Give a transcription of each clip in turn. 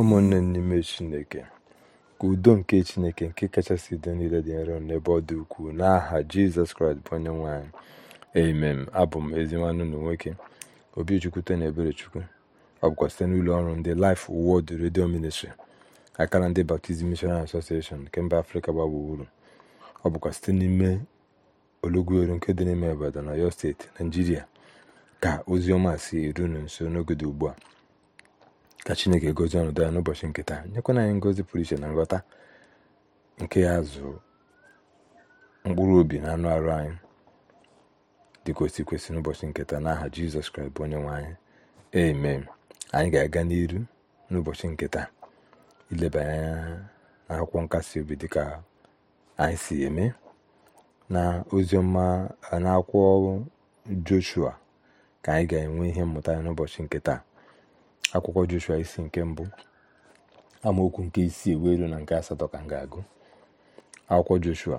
ụmụnne n'ime chineke ka udo nke chineke nke kachasị udo niile dị nro n'ebe ọ dị ukwuu n'aha jizọs kraịst bụ onye nwanyị amen abụ m ezinwanụ na nwoke obichukwute na ebere chukwu ọ bụkwa site n'ụlọ ọrụ ndị Life Word redio Ministry akara ndị baptizim mishonari Association nke mba afrịka gbaa ọ bụkwa site n'ime olugweru nke dị n'ime obodo na Ọyọ steeti naijiria ka ozi ọma si erunu nso n'oge dị ugbu a ka chineke gozie ọnọdụ ya n'ụbọchị nke taa nyekwana anyị ngozi pụrụ iche na nghọta nke ya zụ mkpụrụ obi na anụ arụ anyị dị ka osi kwesị n'ụbọchị nke taa n'aha jizọs kraịst bụ onye nwe anyị eme anyị ga-aga n'iru n'ụbọchị nke taa ileba anya na akwụkwọ nkasi obi dịka anyị si eme na oziọma na akwụkwọ joshua ka anyị ga-enwe ihe mmụta n'ụbọchị nke taa akwụkwọ joshua isi nke mbụ amaokwu nke isii wee na nke asatọ ka m ga-agụ akwụkwọ joshua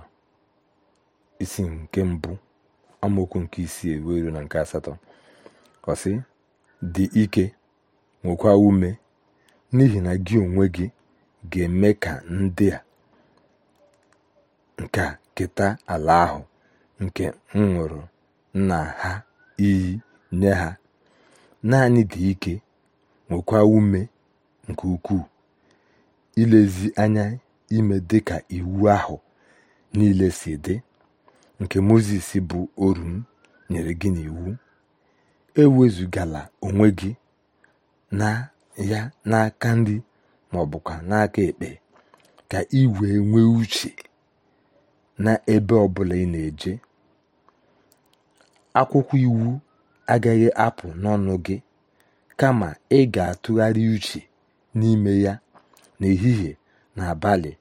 isi nke mbụ amaokwu nke isii ewuelu na nke asatọ ọsị dị ike nwekwa ume n'ihi na gị onwe gị ga-eme ka ndị a nke keta ala ahụ nke m nwụrụ na ha iyi nye ha naanị dị ike nwekwa ume nke ukwuu ilezi anya ime dị ka iwu ahụ niile si dị nke mozes bụ orum nyere gị n'iwu ewezugala onwe gị na ya n'aka ndị ma ọ bụkwa n'aka ekpe ka ị wee nwee uche n'ebe ebe ọbụla ị na-eje akwụkwọ iwu agaghị apụ n'ọnụ gị kama ị ga-atụgharị uche n'ime ya n'ehihie na abalị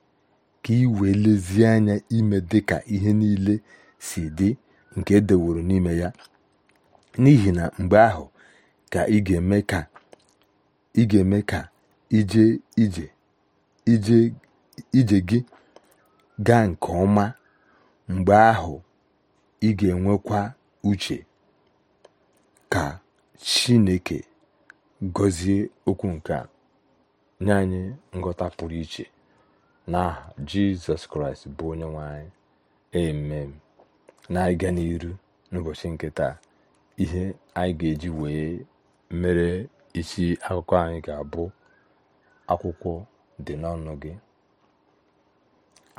ka ị wee lezie anya ime dịka ihe niile si dị nke e n'ime ya n'ihi na mgbe ahụ ka ị ga-eme ka ije ije gị gaa nke ọma mgbe ahụ ị ga-enwekwa uche ka Chineke gọzie okwu nke a nye anyị nghọta pụrụ iche n'aha jizọs kraịst bụ onye nwe anyị emem na-aga n'iru n'ụbọchị nke taa ihe anyị ga-eji wee mere isi akụkọ anyị ga-abụ akwụkwọ dị n'ọnụ gị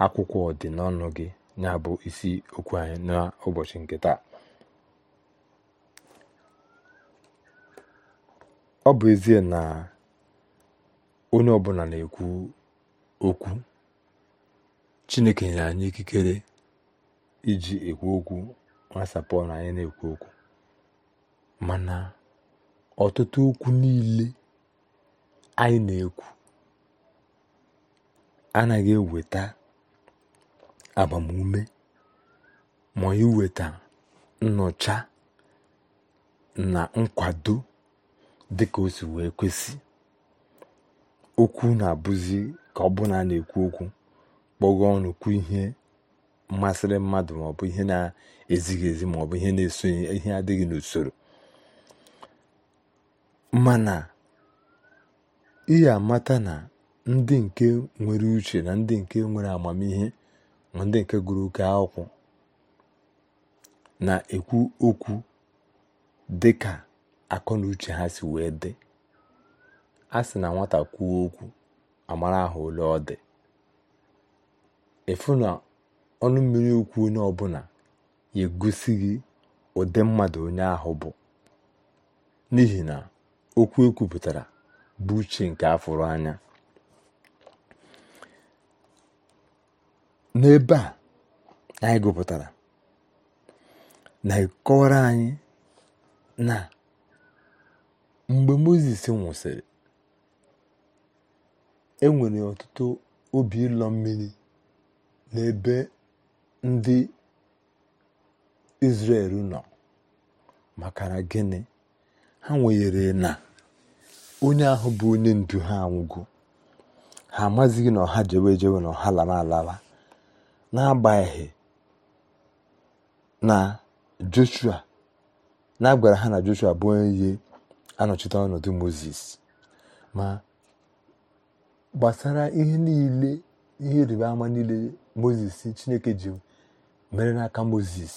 akwụkwọ dị n'ọnụ gị ya bụ isi okwu anyị n'ụbọchị nke taa ọ bụ ezie na onye ọbụla na-ekwu okwu Chineke nyere anyị ikikere iji ekwu okwu nwasapụ na anyị na-ekwu okwu mana ọtụtụ okwu niile anyị na-ekwu anaghị eweta agbamume ma iweta nnọcha na nkwado dịka o si wee kwesị okwu na-abụzi ka ọ bụ na a na-ekwu okwu kpọgo ọnụ kwu ihe mmasịrị mmadụ maọbụ ihe na-ezighị ezi maọbụ ihe na-esonye ihe adịghị n'usoro mana ihe amata na ndị nke nwere uche na ndị nke nwere amamihe na ndị nke gụrụ oke akwụkwọ na-ekwu okwu dịka akọ na uche ha si wee dị a sị na nwata kwuo okwu amara ahụ ole ọ dị efu na ọnụ mmiri okwu onye ọbụla ya egosi gị ụdị mmadụ onye ahụ bụ n'ihi na okwu ekwupụtara bụ uche nke afụrụ anya n'ebe a anyị gụpụtara na ịkọwara anyị na mgbe mozis nwụsịrị e nwere ọtụtụ obi ịlọ mmiri n'ebe ndị Izrel nọ makara gịnị ha nwere na onye ahụ bụ onye ndu ha anwụgo ha amazighị na ọha jewe jewe na ọha lara alala n'agbanyeghị na Joshua na ha na Joshua bụ onye anọchite ah, ọnọdụ moses ma gbasara ihe niile ihe ịrịba ama niile moses chineke ji mere n'aka moses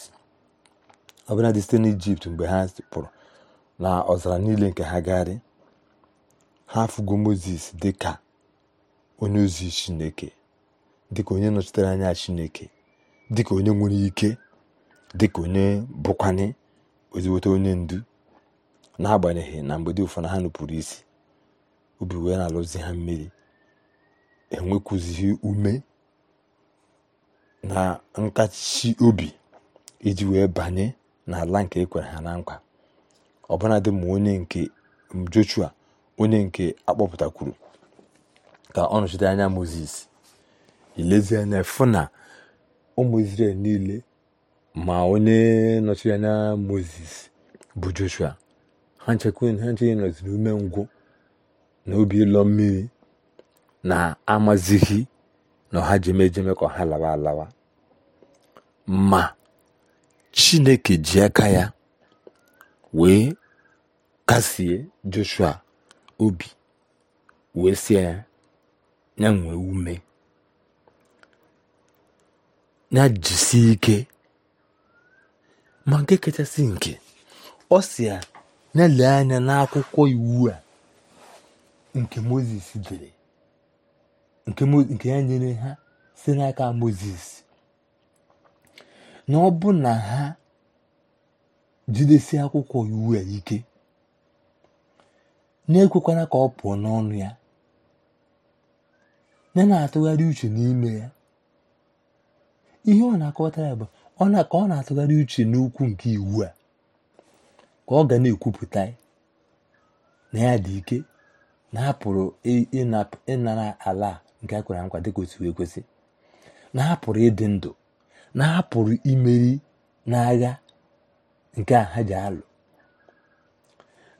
ọbụla dị site n'ijipt mgbe ha pụrụ na ọzara niile nke ha gagharị ha afụgo moses dị ka onye ozi chineke dịka onye nọchitere anya chineke dịka onye nwere ike dịka onye bụkwanye oziweta onye ndu n'agbanyeghị na mgbede ụfọdụ ha nupụrụ isi obi wee na-alụzi ha mmiri enwekwuzighi ume na nkachi obi iji wee banye n'ala nke ekwere ha na nkwa ọbụnadị ma onye nke Joshua onye nke akpọpụtakwuru ka ọ nọchite anya moses anya fụ na ụmụ Izrel niile ma onye nọchiri anya moses bụ Joshua ha nchekwa nọziri ume ngwụ na obi ịlọ mmiri na amazighi na ọha jeme ka ha lawa alawa ma chineke ji aka ya wee kasie joshua obi wee sie ya ya nwee ume ya jisie ike ma nke kachasị nke ọ si ya na-ele anya n'akwụkwọ iwu a nke moses dere nke ya nyere ha si n'aka moses na ọ bụ na ha jidesi akwụkwọ iwu a ike na-ekwekwana ka ọ pụọ n'ọnụ ya na na-atụgharị uche n'ime ya ihe ọ na-akọwatara ya bụ ọ na ka ọ na-atụgharị uche n'ukwu nke iwu a ka ọ ga na-ekwupụta na ya dị ike na apụrụ ịnara ala nke a kwere nkwa dịka otu kwesị na apụrụ ịdị ndụ na apụrụ imeri n'agha nke a ha ji alụ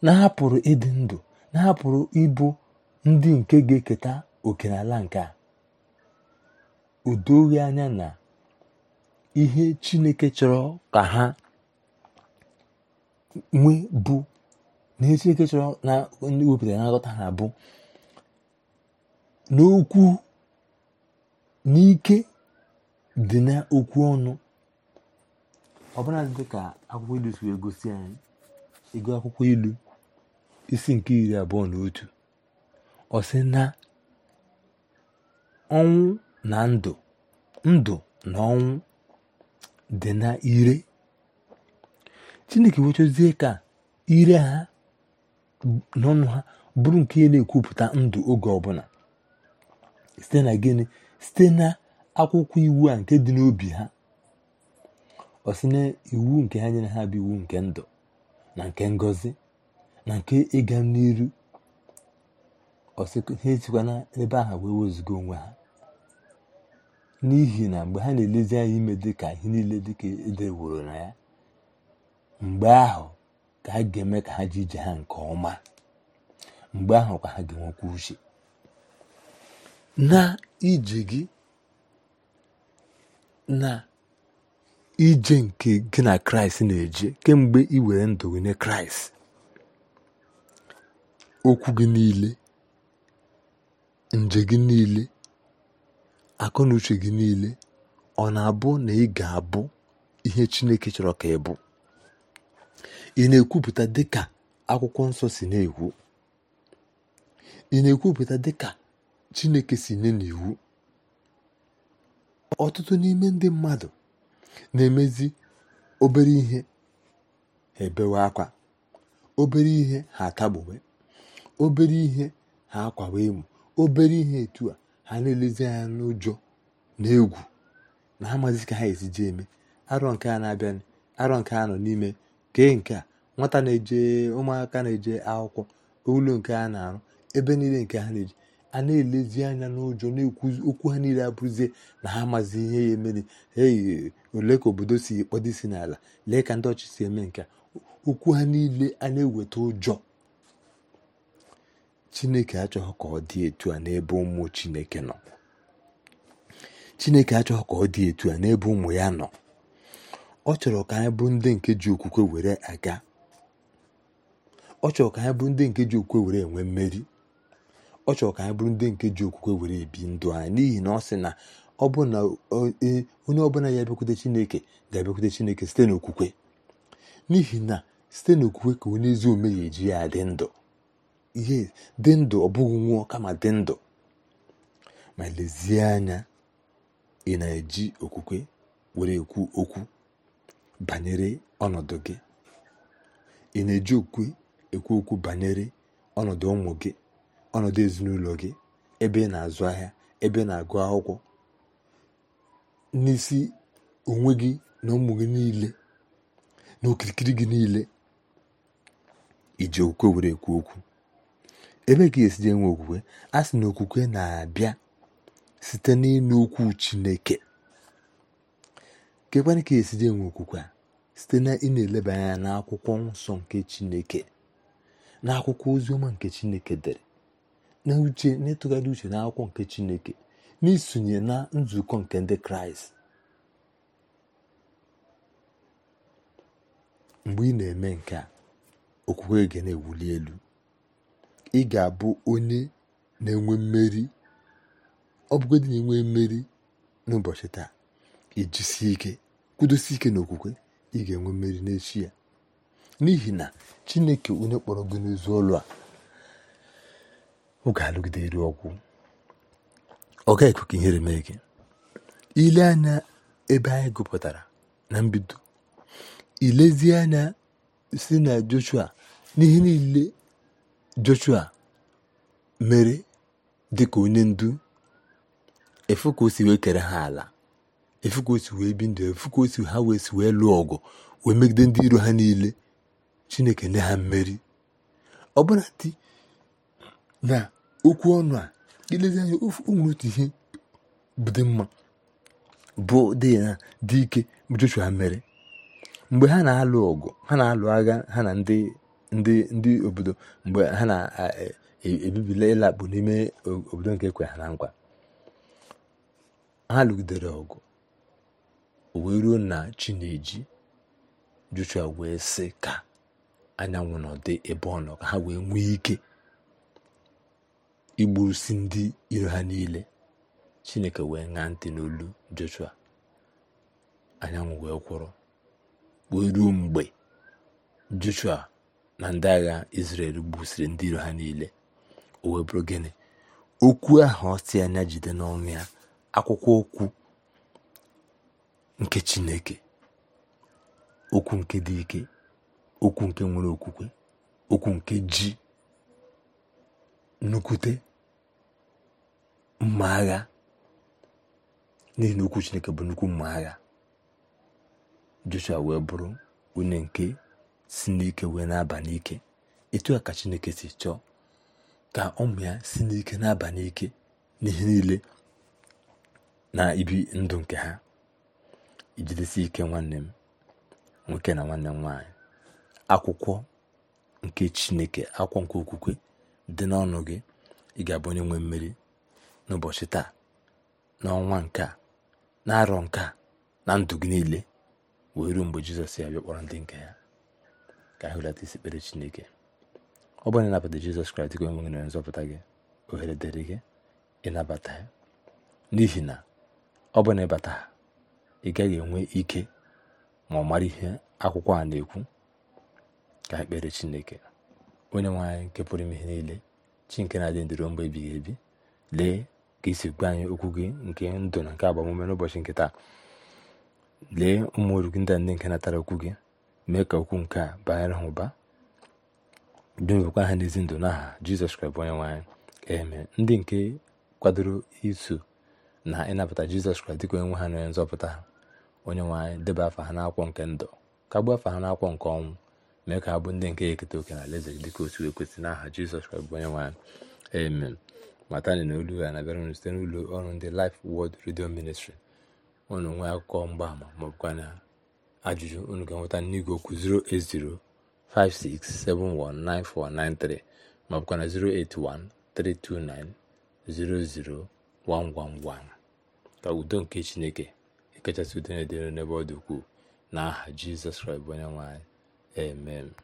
na apụrụ ịdị ndụ na hapụrụ ịbụ ndị nke ga-eketa oke n'ala nke a anya na ihe chineke chọrọ ka ha nwe bụ na ihe chọrọ na ndị wepụtara na nghọta ha bụ n'okwu n'ike dị n'okwu ọnụ ọbụla dị ka akwụkwọ ilu si gosi anyị ego akwụkwọ ilu isi nke iri abụọ na otu ọsị na ọnwụ na ndụ ndụ na ọnwụ dị na ire chineke wechozie ka ire ha n'ọnụ ha bụrụ nke na-ekwupụta ndụ oge ọbụla site na gịnị site na akwụkwọ iwu a nke dị n'obi ha ọ iwu nke ha nyere ha bụ iwu nke ndụ na nke ngozi na nke ịga n'iru ha esikwa ebe aha wee onwe ha n'ihi na mgbe ha na-elezi anya ime dịka ihe niile dịka edeworo na ya mgbe ahụ ka ha ga-eme ka ha ji ije ha nke ọma mgbe ahụ ka ha ga-enwekwa uche na ije gị na ije nke gị na kraịst na-eje kemgbe ị were ndụ gị kraịst okwu gị niile nje gị niile akụ na uche gị niile ọ na-abụ na ị ga-abụ ihe chineke chọrọ ka ị bụ ị na-ekwupụta dịka akwụkwọ nsọ si na-ekwu chineke si nye n'iwu ọtụtụ n'ime ndị mmadụ na-emezi obere ihe ha ebewe akwa obere ihe ha atagbuwe obere ihe ha akwawe emu obere ihe etu a ha na-elezi anya n'ụjọ na egwu na ha amazi ka ha esi eme arọ nke a na-abịa arọ nke a nọ n'ime kee nke a nwata na-eje ụmụaka na-eje akwụkwọ ụlọ nke ha na-arụ ebe niile nke ha na-eji a na-elezi anya n'ụjọ na-ekwu okwu ha niile abụrụzie na ha amazi ihe ya emere ei ole ka obodo si kpọdo isi n'ala lee ka ndị ọchị si eme nke okwu ha niile a na-eweta ụjọ chineke achọghị ka ọ dị etu a n'ebe ụmụ chineke nọ chineke achọghị ka ọ dị etu a n'ebe ụmụ ya nọ ọ chọrọ ka anyị bụ ndị nke ji okwukwe were aga ọ chọrọ ka anyị bụrụ ndị nke ji okwukwe were enwe mmeri ọ chọrọ ka anyị bụrụ ndị nke ji okwukwe were ebi ndụ anyị n'ihi na ọ sị na ọ e, e, onye ọbụla ya abịakwute chineke ga-abịakwute chineke site n'okwukwe n'ihi na site n'okwukwe ka onye ezi ome ya eji ya dị ndụ ihe dị ndụ ọ bụghị nwụọ kama dị ndụ ma lezie anya ị na-eji okwukwe were ekwu okwu banyere ọnọdụ gị ị na-eji okwukwe ekwu okwu banyere ọnọdụ ụmụ gị ọnọdụ ezinụlọ gị ebe ị na-azụ ahịa ebe ị na-agụ akwụkwọ n'isi onwe gị na ụmụ gị niile na okirikiri gị niile iji okwukwe were ekwu okwu ebe ka esi enwe okwukwe a sị na okwukwe na-abịa site n'ịnụ okwu chineke kekwana ka esi enwe okwukwe a site na ị na-eleba anya n'akwụkwọ nsọ nke chineke n'akwụkwọ oziọma nke chineke dere na uche na-etụgharị uche akwụkwọ nke chineke n'isonye na nzukọ nke ndị kraịst mgbe ị na-eme nke a okwukwe gị na-ewuli elu ị ga-abụ onye na-enwe mmeri ọ bụgodị na-enwe mmeri n'ụbọchị taa ijisie ike kwudosie ike n'okwukwe ị ga-enwe mmeri n'echi n'ihi na chineke onye kpọrọ gị n'ụzọ ụlọ a ọ ga-alụgide eru ọgwụ ọ gaghị ekwe ka ihere mee gị ile anya ebe anyị gụpụtara na mbido ilezie anya si na joshua n'ihe niile joshua mere dịka onye ndu efu ka o si wee kere ha ala efu ka o si wee bi ndụ efu ka o si ha wee si wee lụọ ọgụ wee megide ndị iro ha niile chineke nye ha mmeri ọbụna dị na okwu ọnụ a ilezi anya ofu otu ihe dị mma bụ dị na dị ike Joshua mere mgbe ha na-alụ ọgụ ha na-alụ agha ha na ndị ndị ndị obodo mgbe ha na-ebibila e, e, ịlakpụ n'ime obodo nke kwe ha na nkwa ha lụgidere ọgụ o wee ruo na chi Joshua wee sị ka anyanwụ dị ebe ọ nọ ka ha wee nwee ike igburusi ndị iro ha niile chineke wee ṅaa ntị n'olu joshua anyanwụ wee kwụrụ wee ruo mgbe joshua na ndị agha israel gbusiri ndị iro ha niile o wee bụrụ gịnị okwu ahụ ọsị anya jide n'ọnụ ya akwụkwọ okwu nke chineke okwu nke dị ike okwu nke nwere okwukwe okwu nke ji nnukwute mma agha n'ihi na okwu chineke bụ nnukwu mma agha joshua wee bụrụ onye nke si n'ike wee na-aba n'ike etu a ka chineke si chọọ ka ụmụ ya si n'ike na-aba n'ike n'ihe niile na ibi ndụ nke ha ijidesi ike nwanne m nwoke na nwanne m nwaanyị akwụkwọ nke chineke akwụkwọ nke okwukwe dị n'ọnụ gị ị ga-abụ onye nwe mmeri n'ụbọchị taa n'ọnwa nke a na-arọ nke a na ndụ gị niile wee ruo mgbe jizọs ya bịa kpọrọ ndị nke ya ka anyị hụlata isi kpere chineke ọ bụrụ na ịnabata jizọs kraịst gị onwe gị na nzọpụta gị ohere dịrị gị ịnabata ya n'ihi na ọ bụ na ịbata ha ị gaghị enwe ike ma ọ mara ihe akwụkwọ a na-ekwu ka ha kpere chineke onye nwe nke pụrụ ime ihe niile chi nke na-adị ndịro mgbe ebighị ebi lee ka isi gwa anyị okwu gị nke ndụ na nke agbamume n'ụbọchị nke taa lee ụmụ oru gị ndị nke natara okwu gị mee ka okwu nke a banyere ha ụba dewekwa ha n'ezi ndụ n'aha jizọs kraịst onye nwaanyị anyị eme ndị nke kwadoro iso na ịnabata jizọs kraịst dịka onye nwe ha na onye nzọpụta ha onye nwaanyị deba afa ha n'akwụkwọ nke ndụ kagbuo afa ha n'akwụkwọ nke ọnwụ mee ka ndị nke ya eketa oke na alaeze gị dịka otu ekwesị n'aha jizọs kraịst bụ onye nwanyị amen matani na olu ya na-abịara site n'ụlọ ọrụ ndị lif wọd redio Ministry unu nwee akụkọ mgbaama maọbụkwa na ajụjụ unu ga-enweta n'igwe okwu 08056719493 maọbụkwa na 08132900111 ka udo nke chineke ekechasị udo na-edere n'ebe ọ dị ukwuu n'aha Jizọs Kraịst onye nwanyị Amen.